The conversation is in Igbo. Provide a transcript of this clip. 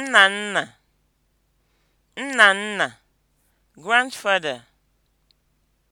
Nna nna, nna nna, (grandfather)